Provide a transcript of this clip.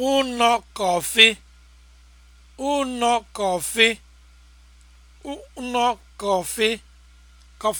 ụnọ kọfị kọfị